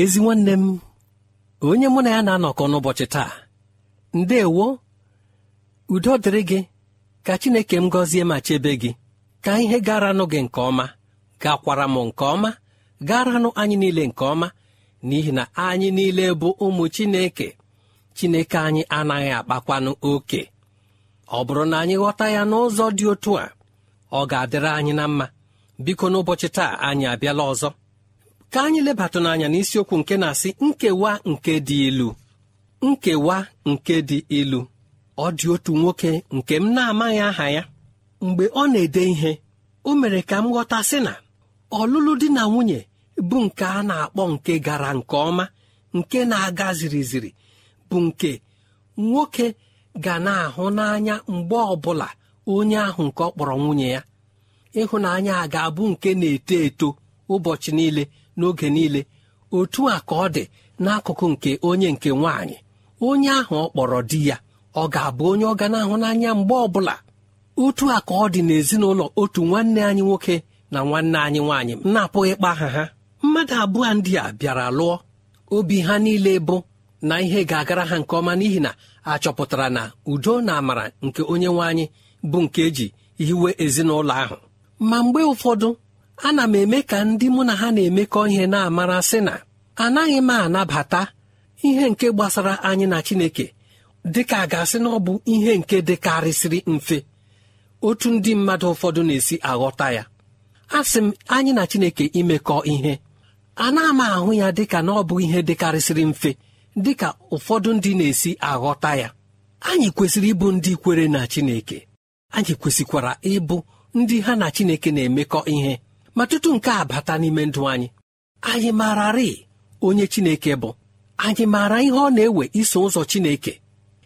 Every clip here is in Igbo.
ezi nwanne m onye mụ na ya na-anọkọ n'ụbọchị taa ndewo udo dịrị gị ka chineke m gọzie ma chebe gị ka ihe garanụ gị nke ọma gakwara m nke ọma garanụ anyị niile nke ọma n'ihi na anyị niile bụ ụmụ chineke chineke anyị anaghị akpakwanụ oke ọ bụrụ na anyị ghọta ya n'ụzọ dị otu a ọ ga-adịrị anyị na mma biko n'ụbọchị taa anyị abịala ọzọ ka anyị lebata n'anya n'isiokwu nke na-asị nkewa nke dị ilu nkewa nke dị ilu ọ dị otu nwoke nke m na-amaghị aha ya mgbe ọ na-ede ihe o mere ka m ghọta sị na ọlụlụ di na nwunye bụ nke a na-akpọ nke gara nke ọma nke na-aga ziri ziri bụ nke nwoke ga na-ahụ n'anya mgbe ọbụla onye ahụ nke ọ kpọrọ nwunye ya ịhụnanya ga-abụ nke na-eto eto ụbọchị niile n'oge niile otu a ka ọ dị n'akụkụ nke onye nke nwaanyị onye ahụ ọ kpọrọ di ya ọ ga-abụ onye ọ ga na-ahụ n'anya mgbe ọbụla otu a ka ọ dị n'ezinụlọ otu nwanne anyị nwoke na nwanne anyị nwaanyị m na-apụghị aha ha mmadụ abụọ ndị a bịara lụọ obi ha niile bụ na ihe ga-agara ha nke ọma n'ihi na a chọpụtara na udo na amara nke onye nwaanyị bụ nke eji hiwe ezinụlọ ahụ ma mgbe ụfọdụ ana m eme ka ndị mụ na ha na-emekọ ihe na-amara sị na anaghị m anabata ihe nke gbasara anyị na Chineke dịka a ga-asị na ọ bụ ihe nke dịkarịsịrị mfe otu ndị mmadụ ụfọdụ na-esi aghọta ya asị m anyị na Chineke imekọ ihe ana m ahụ ya dịka na ọ bụ ihe dịkarịsịrị mfe dịka ụfọdụ ndị na-esi aghọta ya anyị kwesịrị ịbụ ndị kwere na Chineke anyị kwesịkwara ịbụ ndị ha na Chineke na-emekọ ihe ma tutu nke a bata n'ime ndụ anyị anyị maararị onye chineke bụ anyị maara ihe ọ na-ewe iso ụzọ chineke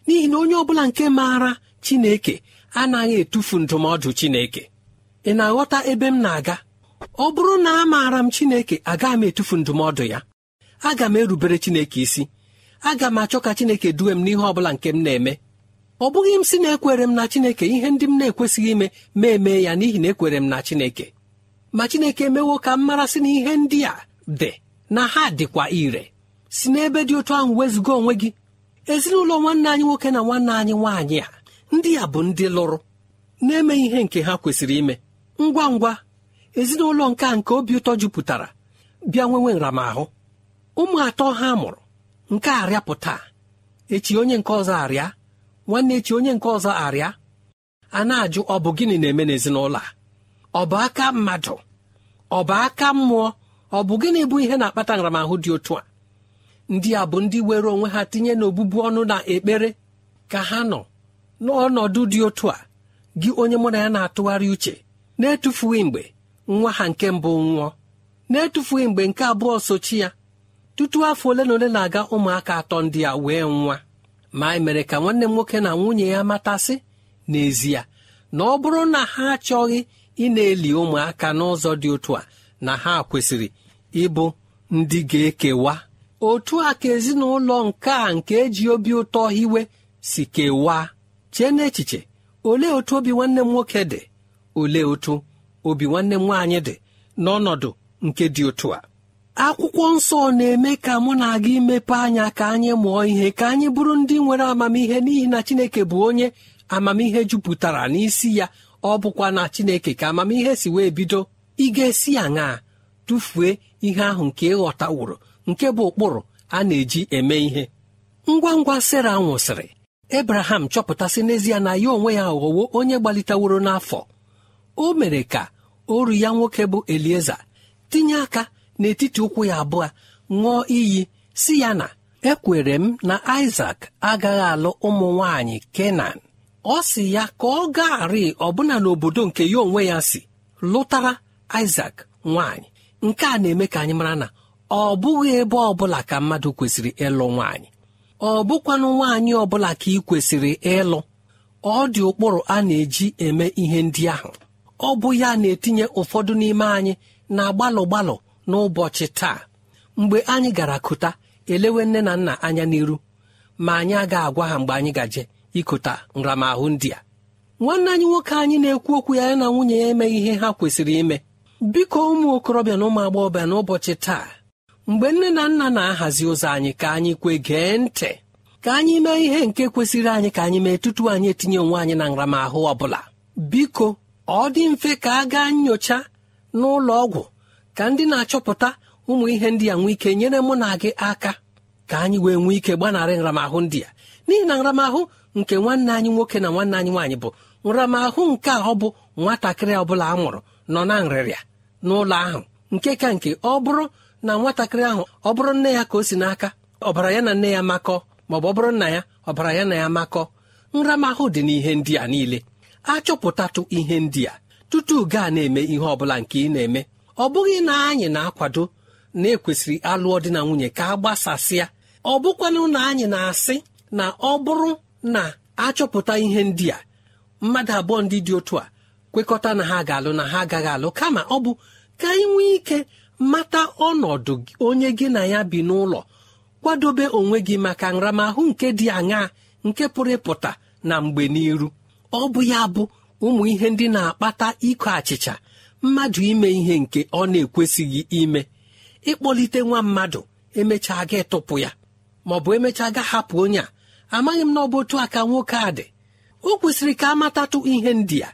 n'ihi na onye ọbụla nke maara chineke anaghị etufu ndụmọdụ chineke ị na-aghọta ebe m na-aga ọ bụrụ na a maara m chineke agaghị m etufu ndụmọdụ ya aga m erubere chineke isi aga m achọ ka chineke duwe m n'ihe ọ bụla nke m na-eme ọ bụghị m si na ekwere m na chineke ihe ndị m na-ekwesịghị ime ma eme ya n'ihi na ekwere m na chineke ma chineke emewo ka m na ihe ndị a dị na ha dịkwa ire si n'ebe dị otu ahụ wezụga onwe gị ezinụlọ nwanne anyị nwoke na nwanne anyị nwaanyị a ndị a bụ ndị lụrụ na-eme ihe nke ha kwesịrị ime ngwa ngwa ezinụlọ nke a nke obi ụtọ jupụtara bịa nwenwe nramahụ ụmụ atọ ha mụrụ nke arịapụta echi onye nke ọzọ arịa nwanne echi onye nke ọzọ arịa a na-ajụ ọ bụ gịnị na-eme n'ezinụlọ a ọ bụ aka mmadụ ọ bụ aka mmụọ ọ bụ gịnị bụ ihe na-akpata nramahụ dị otu a ndị a bụ ndị were onwe ha tinye n'obụbu ọnụ na ekpere ka ha nọ n'ọnọdụ dị otu a gị onye mụ na ya na-atụgharị uche na-etufughị mgbe nwa ha nke mbụ nwụọ na-etufughị mgbe nke abụọ sochi ya tutu afọ ole na ole na-aga ụmụaka atọ ndị a wee nwa ma e mere ka nwanne m nwoke na nwunye ya matasị n'ezie na ọ bụrụ na ha achọghị ị na-eli ụmụaka n'ụzọ dị otu a na ha kwesịrị ịbụ ndị ga-ekewa otu a ka ezinụlọ nke a nke eji obi ụtọ hiwe si kewaa chee n'echiche olee otu obi nwanne m nwoke dị olee otu obi nwanne m nwaanyị dị n'ọnọdụ nke dị otu a akwụkwọ nsọ na-eme ka mụ na aga imepe anya ka anyị mụọ ihe ka anyị bụrụ ndị nwere amamihe n'ihi na Chineke bụ onye amamihe jupụtara n'isi ya ọ bụkwa na chineke ka amamihe si wee bido ị ga-esi aṅaa tụfuo ihe ahụ nke ịghọtaworo nke bụ ụkpụrụ a na-eji eme ihe ngwa ngwa sera nwụsịrị ebraham chọpụtasị n'ezie na ya onwe ya ghọwo onye gbaliteworo n'afọ o mere ka oru ya nwoke bụ elieza tinye aka n'etiti ụkwụ ya abụọ ṅụọ iyi si ya na ekwere m na isak agaghị alụ ụmụ nwanyị kenan ọ si ya ka ọ gaarị ọbụna n'obodo nke ya onwe ya si lụtara isak nwaanyị nke a na-eme ka anyị mara na ọ bụghị ebe ọbụla ka mmadụ kwesịrị ịlụ nwaanyị ọ bụkwanụ nwaanyị ọbụla ka ị kwesịrị ịlụ ọ dị ụkpụrụ a na-eji eme ihe ndị ahụ ọ bụ ya na-etinye ụfọdụ n'ime anyị na gbalụ gbalụ n'ụbọchị taa mgbe anyị gara kụta elewe nne na nna anya n'iru ma anyị agaghị agwa ha mgbe anyị gaje ikota nramahụ ndị a nwanne anyị nwoke anyị na-ekwu okwu ya na nwunye ya emeghị ihe ha kwesịrị ime biko ụmụ okorobịa na ụmụ agbọghọbịa n'ụbọchị taa mgbe nne na nna na-ahazi ụzọ anyị ka anyị kwe gee ntị ka anyị mee ihe nke kwesịrị anyị ka anyị mee tutu anyị etinye onwe anyị na nramahụ ọ bụla biko ọ dị mfe ka a gaa nyocha n'ụlọ ọgwụ ka ndị na-achọpụta ụmụ ihe ndị a nwee ike nyere mụ na gị aka ka anyị wee nwee ike gbanarị nramahụ ndị ya n'ihi na nramahụ nke nwanne anyị nwoke na nwanne anyị nwaanyị bụ nramahụ nke a ọ bụ nwatakịrị ọ bụla a mụrụ nọ na nrịrịa n'ụlọ ahụ nke ka nke ọ bụrụ na nwatakịrị ahụ ọ bụrụ nne ya ka o si n'aka ọbara ya na nne ya makọ ma ọ bụrụ nna ya ọbara ya na ya makọ nramahụ dị n'ihe ndị a niile achọpụtatụ ihe ndị a tutu gaa na-eme ihe ọ bụla nke ị na-eme ọ bụghị na anyị na-akwado na ekwesịrị alụọ dị na nwunye ka a gbasasịa ọ bụkwanụ na anyị na-asị na ọ bụrụ na-achọpụta ihe ndị a mmadụ abụọ ndị dị otu a kwekọta na ha ga-alụ na ha agaghị alụ kama ọ bụ ka anyị nwee ike mata ọnọdụ onye gị na ya bi n'ụlọ kwadobe onwe gị maka nramahụ nke dị aṅaa nke pụrụ ịpụta na mgbe n'iru ọ bụ ya bụ ụmụ ihe ndị na-akpata ịkọ achịcha mmadụ ime ihe nke ọ na-ekwesịghị ime ịkpọlite nwa mmadụ emechaa ga tụpụ ya maọbụ emechaa ga hapụ onye a amaghị m na ọ bụ aka nwoke a dị o kwesịrị ka a matatụ ihe ndị a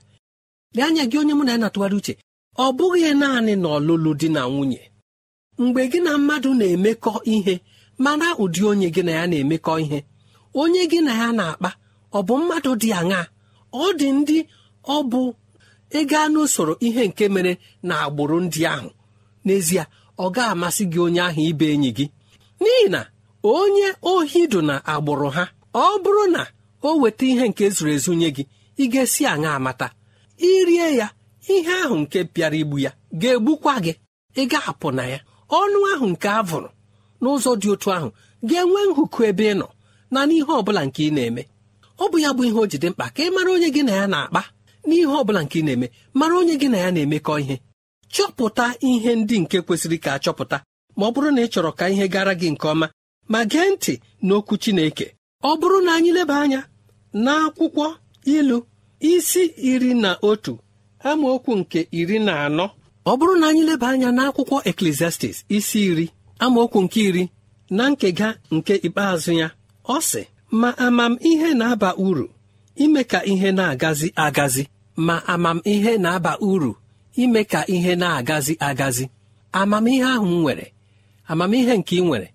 anya gị onye mụ na ya na uche ọ bụghị naanị na ọlụlụ di na nwunye mgbe gị na mmadụ na-emekọ ihe mana ụdị onye gị na ya na-emekọ ihe onye gị na ya na-akpa ọ bụ mmadụ dị aṅaa ọ dị ndị ọ bụ ịga n'usoro ihe nke mere na agbụrụ ndị ahụ n'ezie ọ ga-amasị gị onye ahụ ibe enyi gị n'ihi na onye ohi dụ na agbụrụ ha ọ bụrụ na o weta ihe nke zuru ezu nye gị ị ga-esi aṅa amata irie ya ihe ahụ nke pịara igbu ya ga-egbukwa gị ị ga-apụ na ya ọnụ ahụ nke a vụrụ n'ụzọ dị otu ahụ ga-enwe nhụkụ ebe ị nọ na n'ihe ọ bụla nke ị na-eme ọ bụ ya bụ ihe o ji dị mkpa ka ị mara onye gị na ya na-akpa n'ihe ọ bụla nke ị na-eme mara onye gị na ya na-emekọ ihe chọpụta ihe ndị nke kwesịrị ka a chọpụta ma ọ bụrụ na ị chọrọ ka ihe gara gị nke ọma ma gee ntị n'okwu Chineke ọ bụrụ na anyị leba anya n'akwụkwọ ilu isi iri na otu amaokwu nke iri na anọ ọ bụrụ na anyị leba anya n'akwụkwọ eklesiastis isi iri amaokwu nke iri na nkega nke ikpeazụ ya ọ sị ma amamihe na-aba uru ime ka ihe na-agazi agazi ma amamihe na-aba uru ime ka ihe na-agazi agazi amamihe ahụ m nwere amamihe nke ị nwere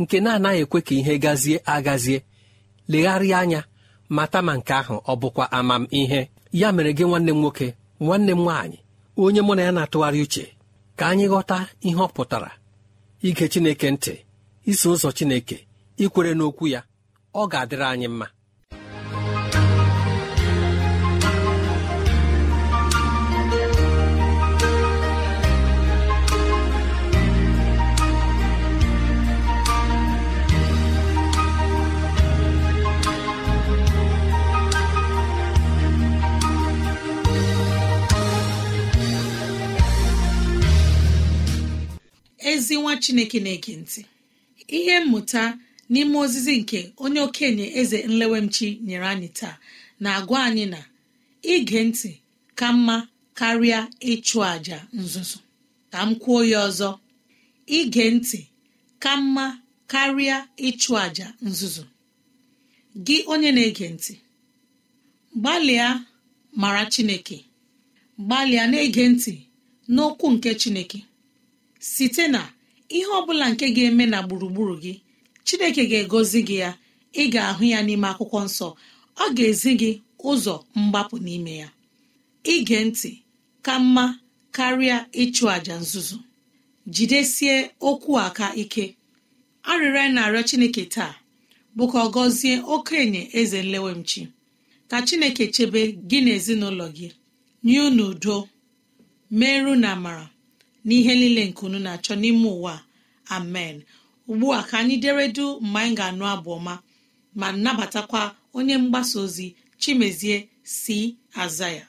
nke na-anaghị ekwe ka ihe gazie agazie legharịa anya mata ma nke ahụ ọ bụkwa ihe ya mere gị nwanne m nwoke nwanne m nwaanyị onye mụ na ya na-atụgharị uche ka anyị ghọta ihe ọ pụtara ige Chineke ntị iso ụzọ Chineke ikwere n'okwu ya ọ ga-adịrị anyị mma ezi nwa chineke na-ege ntị ihe mmụta n'ime ozizi nke onye okenye eze nlewemchi nyere anyị taa na-agwa anyị na ige ntị ka mma karịa ịchụ àja nzuzo ka m kwuo ya ọzọ ige ntị ka mma karịa ịchụ àjà nzuzu gị onye na-ege ntị gbalịa mara chineke gbalịa na-ege ntị n'okwu nke chineke site na ihe ọ bụla nke ga-eme na gburugburu gị chineke ga-egozi gị ya ị ga-ahụ ya n'ime akwụkwọ nsọ ọ ga-ezi gị ụzọ mgbapụ n'ime ya ige ntị ka mma karịa ịchụ àjà nzuzu jidesie okwu aka ike arịrịọ na-arịọ chineke taa bụ ka ọ gọzie okenye eze nlewemchi ka chineke chebe gị na ezinụlọ gị nye unu udo meru na amara n'ihe niile nke unu na-achọ n'ime ụwa amen ugbu a ka anyị deredu mgbe anyị ga-anụ abụ ọma ma nabatakwa onye mgbasa ozi chimezie si aza ya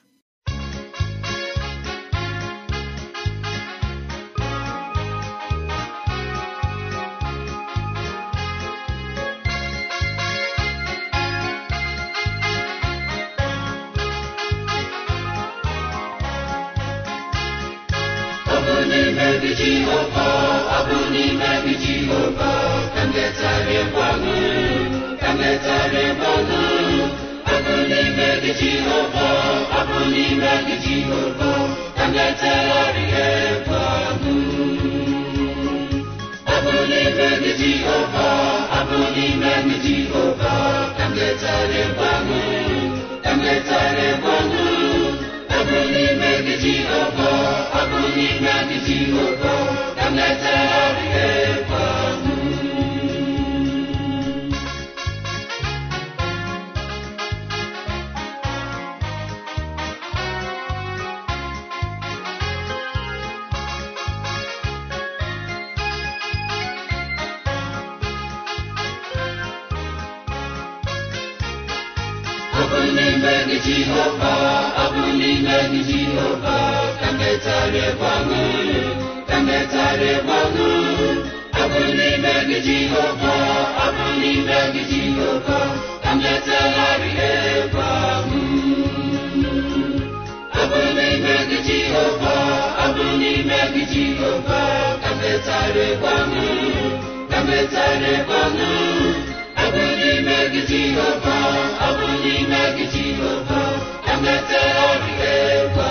mebichi ụkọ ọ bụ n'ime bichi ụkọ ka nletara gwanụ ka nletara gwanụ ọ bụ n'ime bichi ụkọ ọ bụ n'ime bichi ụkọ ka nletara gwanụ ọ bụ n'ime bichi ụkọ ọ bụ n'ime gị Jehova ọ bụ n'ime gị Jehova ka m letara gị n'ime gị jehova abụ n'ime gị jehova ka abụ n'ime gị jehova abụ n'ime gị jehova ka metagharị gbanwe abụ n'ime gị jehova abụ n'ime gị Abụ n'ime gị Jehova, abụ n'ime gị Jehova, emete ọrịa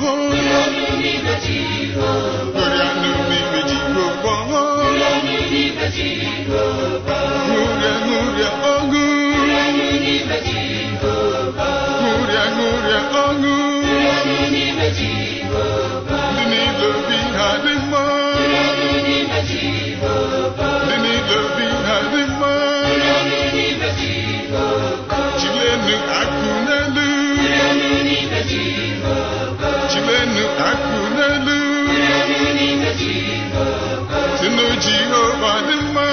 dị nnu ọba dị mma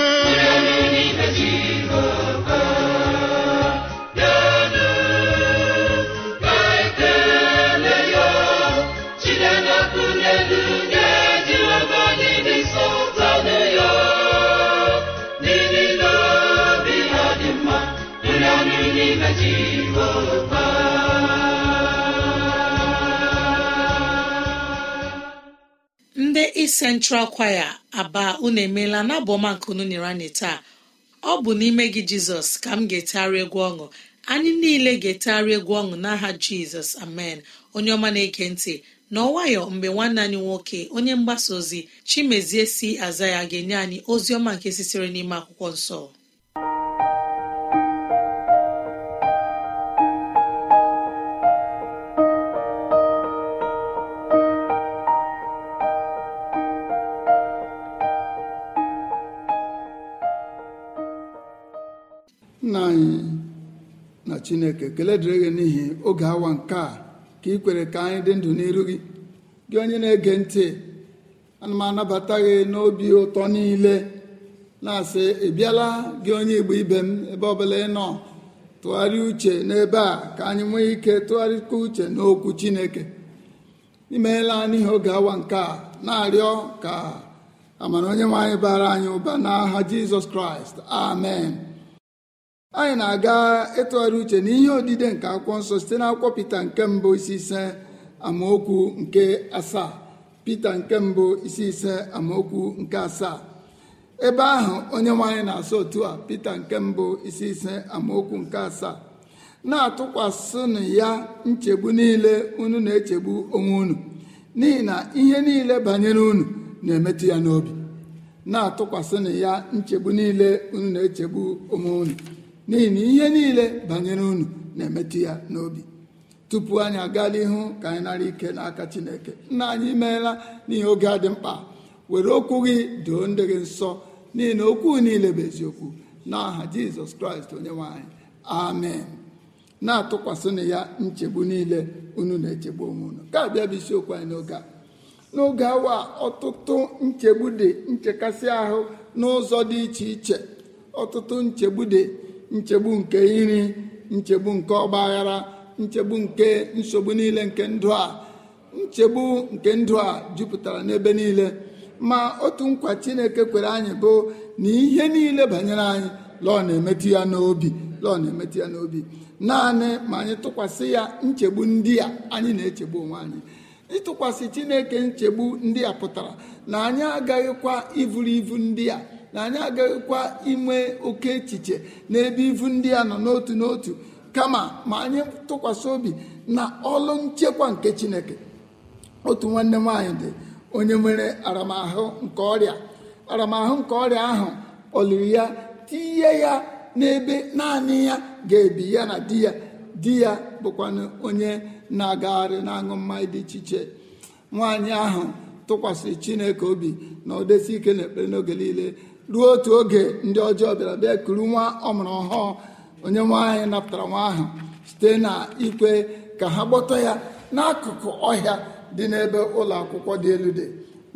ndị Central Choir aba unu emeela n'abụ ọma nke unu nyere anyị taa ọ bụ n'ime gị jizọs ka m ga-etegharị egwu ọṅụ anyị niile ga-etegharị egwu ọṅụ n'aha jizọs amen onye ọma na-ege ntị na ọnwayọ mgbe nwanne anyị nwoke onye mgbasa ozi chimezie si aza ya ga-enye anyị ozi ọma nke sitere n'ime akwụkwọ nsọ anyị na chineke kelee dịrị gị n'ihi oge awa nke a ka ị kwere ka anyị dị ndụ n'iru gị gị onye na-ege ntị ana m anabata gị n'obi ụtọ niile na-asị ị bịala gị onye igbo ibe m ebe ọbụla ị nọ tụgharị uche n'ebe a ka anyị nwee ike tụgharịkwa uche n'okwu chineke imeela n'ihi oge awa nke a na-arịọ ka amara onye nwe anyị bara anyị ụba n'aha jizọs kraịst amen anyị na-aga ịtụgharị uche na ihe odide nke akwụkwọ nsọ site n'akwụkwọ Pita nke mbụ isi ise amaokwu nke asaa Pita nke mbụ isi ise amaokwu nke asaa ebe ahụ onye nwaanyị na-asọ otu a Pita nke mbụ isi ise amaokwu nke asaa na-atụkwasịnụ ya nchegbu niile unu na-echegbu onwe unu n'ihi na ihe niile banyere unu na-emetụ ya n'obi na-atụkwasịnụ ya nchegbu niile unu na-echegbu onwe unu n'ihi na ihe niile banyere unu na-emetụ ya n'obi tupu anyị aga n'ihu ka anyị nara ike n'aka chineke nna anyị meela n'ihe oge a dị mkpa were okwu gị doo ndị gị nsọ n'ihi na okwu niile bụ eziokwu n'aha jizọs kraịst onye nwanyị amen na-atụkwasịnụ ya nchegbu niile unu na-echegbu onwe unu ka abịa bụ isiokwu anyị n'oge a n'oge awa ọtụtụ nchegbu dị nchekasị ahụ n'ụzọ dị iche iche ọtụtụ nchegbu dị nchegbu nke iri nchegbu nke ọgba aghara nchegbu nke nsogbu niile nke ndụ a nchegbu nke ndụ a jupụtara n'ebe niile ma otu nkwa chineke kwere anyị bụ na ihe niile banyere anyị lọọ na-emetụ ya n'obi lọọ na-emetụ ya n'obi naanị ma anyị tụkwasị ya nchegbu ndị a anyị na-echegbu onwe anyị ịtụkwasị chineke nchegbu ndị a pụtara na anyị agaghịkwa ivuru ivu ndị a na anyị agaghịkwa inwe oke echiche n'ebe ivu ndị a nọ n'otu n'otu kama ma anyị tụkwasị obi na ọlụ nchekwa nke chineke otu nwanne nwaanyị dị onye nwere aramahụ nke ọrịa aramahụ nke ọrịa ahụ oliri ya tinye ya n'ebe naanị ya ga-ebi ya na di ya di ya bụkwanụ onye na-agagharị na-aṅụ mmanya dị iche iche nwaanyị ahụ tụkwasịrị chineke obi na ọ desi ike na ekpere n'oge niile ruo otu oge ndị ọjọọ bịara bịa kuru nwa ọmụrụ ọhụụ onye nwa napụtara nwa ahụ site na ikwe ka ha gbọtọ ya n'akụkụ ọhịa dị n'ebe ụlọ akwụkwọ dị elu dị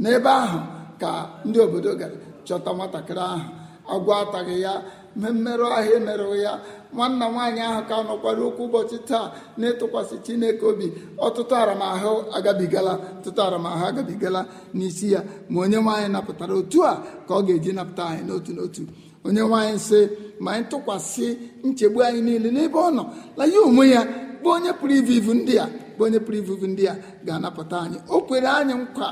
n'ebe ahụ ka ndị obodo gara chọta nwatakịrị ahụ agwọ ataghị ya mmerụ ahịa emerụghị ya nwanna nwaanyị ahụ ka nọkwara okwu ụbọchị taa na-etụkwasị chineke obi ọtụtụ aramahụ agabigala ọtụtụ aramahụ agabigala n'isi ya ma onye nwaanyị napụtara otu a ka ọ ga-eji napụta anyị n'otu n'otu onye nwaanyị sị ma anyị tụkwasị nchegbu anyị niile n'ebe ọ nọ na ya onwe ya bụ onye pụrụ ivu ivu ndị a onye pụrụ ivuvu ndị a ga-anapụta anyị o kwere anyị nkwa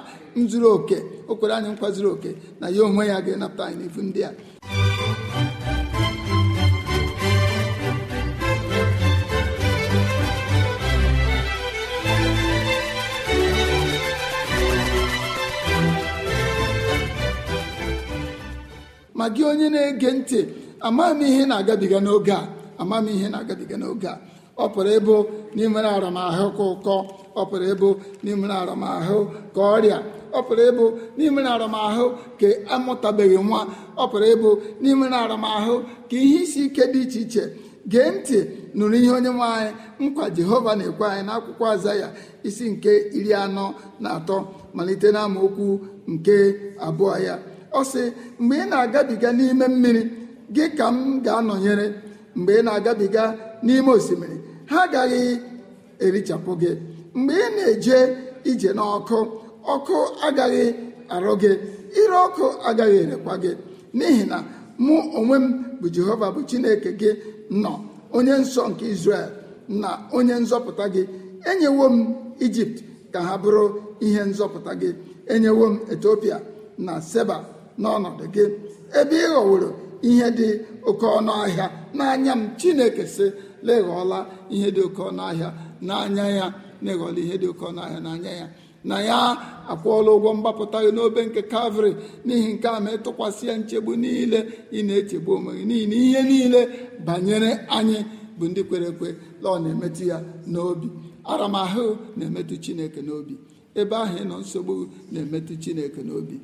zuru oke o kwere anyị nkwa zuru oke na ya onwe ya ga-anapụta anyị n'ivu ndị a ma gị onye na-ege ntị amaghị m ihe na-agabiga n'oge a amaghị m ihe na-agabiga n'oge a ọ pụrụ ịbụ n'ime aramahụ ka ụkọ ọ pụrụ ịbụ n'ime aramahụ ka ọrịa ọ pụrụ ịbụ n'ime aramahụ ka amụtabeghị nwa ọ pụrụ ịbụ n'ime aramahụ ka ihe isi ike dị iche iche gee ntị nụrụ ihe onye nwe anyị nkwa jehova na-ekwe anyị n'akwụkwọ aza ya isi nke iri anọ na atọ malite n'amaokwu nke abụọ ya ọ sị mgbe ị na-agabiga n'ime mmiri gị ka m ga-anọnyere mgbe ị na-agabiga n'ime osimiri ha agaghị erichapụ gị mgbe ị na-eje ije n'ọkụ ọkụ agaghị arụ gị ire ọkụ agaghị erekwa gị n'ihi na mụ onwe m bụ jehova bụ chineke gị nọ onye nsọ nke israel na onye nzọpụta gị enyewo m ijipt ka ha bụrụ ihe nzọpụta gị enyewo m etiopia na seba n'ọnọdụ gị ebe ị ghọworo ihe dị oke ọnụ ahịa n'anya m chineke sị leghọla ihe dị oke ọnụ ahịa n'anya ya na ihe dị oke ọnụ ahịa n'anya ya na ya akwụọla ụgwọ mgbapụta gị n'obe nke kavri n'ihi nke a ma ịtụkwasị ya nchegbu niile ị na-echegbu onwe gị n'ihi na ihe niile banyere anyị bụ ndị kwere ekwe ọ na-emetụ ya n'obi aramahụ na-emetụ chineke n'obi ebe ahụ ịnọ nsogbu na-emetụ chineke n'obi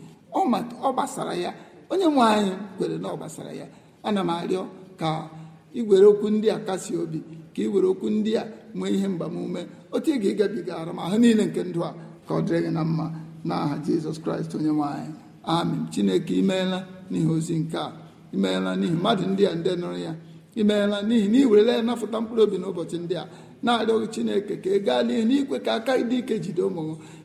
ọ gbasara ya onye nwe anyị kwere na ọ gbasara ya ana m arịọ ka iwere okwu ndị a kasị obi ka i were okwu ndị a nwee ihe mgbamume otu ị ga-ịgabiga aramahụ niile nke ndụ a ka ọ dịrị gị na mma n'aha jizọs kraịst onye nwanyị amen chineke imeela n'ihi ozi nke a imeela n'ihi mmadụ ndị a ndị nụrụ ya imeela n'ihi na iwerela werela ya napụta mkpụrụ obi n'ụbọchị ndị a na-arịọghị chineke ka ị gaa n'ihu ikwe ka aka dị ike jide ụmụ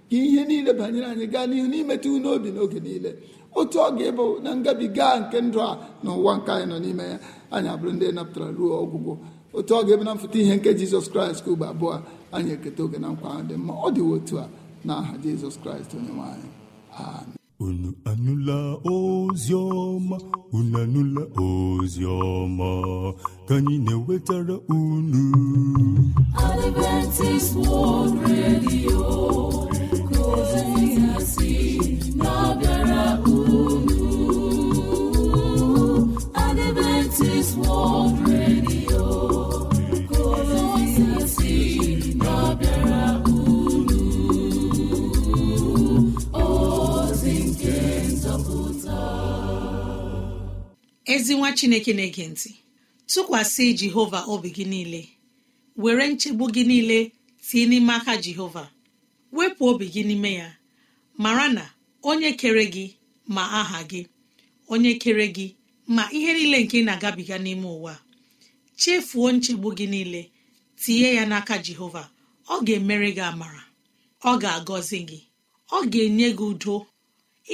ka ihe niile banyere anyị gaa n'ihu n'imetụ n'obi n'oge niile otu ọ ga-ebo na ngabiga nke ndụ a na ụwa nke anyị nọ n'ime ya anyị abụrụ ndị napụtara ruo ọgwụgwụ otu ọ ga-ebe na mfụta ihe nke jizọs kraịst ugbo abụọ anyị eketa oge na nkwa ahụ dị mma ọ dị otu a n'aha jizọs kraịst onye nwanyị. unu anụla ozi ọma unu anụla ozi ọma ka anyị na-ewetara unu Adventist World Radio ezi nwa chineke na-ege ntị tụkwasị jehova obi gị niile were nchegbu gị niile tie n'ime aka jehova wepụ obi gị n'ime ya mara na onye kere gị ma aha gị onye kere gị ma ihe niile nke ị na-agabiga n'ime ụwa chefuo nchegbu gị niile tinye ya n'aka jehova ọ ga-emere gị amara ọ ga-agọzi gị ọ ga-enye gị udo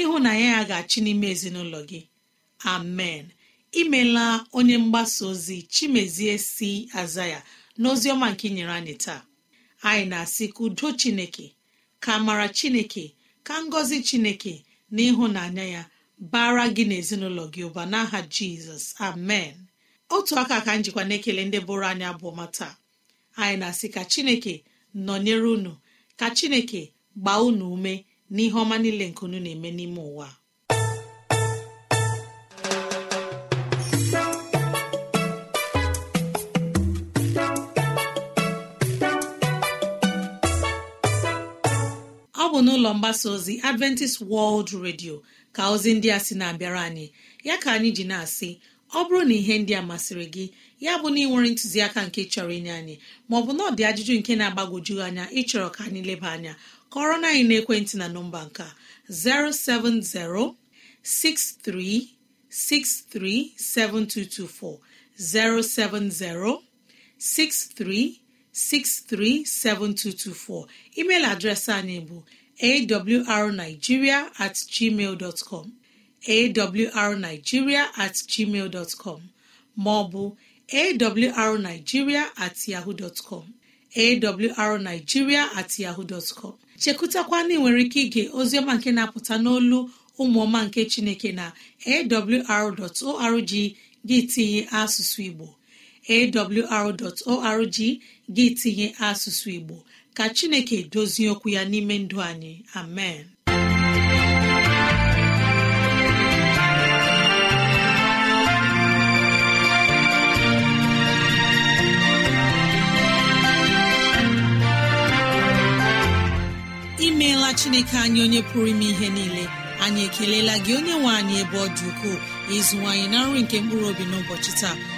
ịhụnanya ya ga-achị n'ime ezinụlọ gị amen imela onye mgbasa ozi chimezie si aza ya n'ozi ọma nke nyere anyị taa anyị na-asị ka udo chineke ka amara chineke ka ngọzi chineke na ịhụnanya ya bara gị n'ezinụlọ gị ụba n'aha jizọs amen otu aka ka njikwa na-ekele ndị bụrụ anyị abụọ mata anyị na-asị ka chineke nọnyere unu ka chineke gbaa unu ume n'ihe ọma niile nke unu na-eme n'ime ụwa n'ụlọ mgbasa ozi adventist world radio ka ozi ndị a sị na-abịara anyị ya ka anyị ji na-asị ọ bụrụ na ihe ndị a masịrị gị ya bụ na ị nwere ntụziaka nke chọrọ inye anyị maọbụ na ọ dị ajụjụ nke na-agbagwoju anya ịchọrọ ka anyị leba anya kọrọ na anyị n'ekwentị na nọmba nka 07063637224 07063637224 email adreesị anyị bụ awrnigeria atgmal com dọtcọm awrnigeria at maọbụ awrnigeria at yahoo dọtcọm awrnigeria at chekụtakwa ike ige ozioma nke na-apụta n'olu ụmụọma nke chineke na awr.org gị tinye asụsụ igbo awr.org gị tinye asụsụ igbo ka chineke dozie okwu ya n'ime ndụ anyị amen imeela chineke anyị onye pụrụ ime ihe niile anyị ekelela gị onye nwe anyị ebe ọ dị ukwuu ịzụwanyị na nri nke mkpụrụ obi n'ụbọchị taa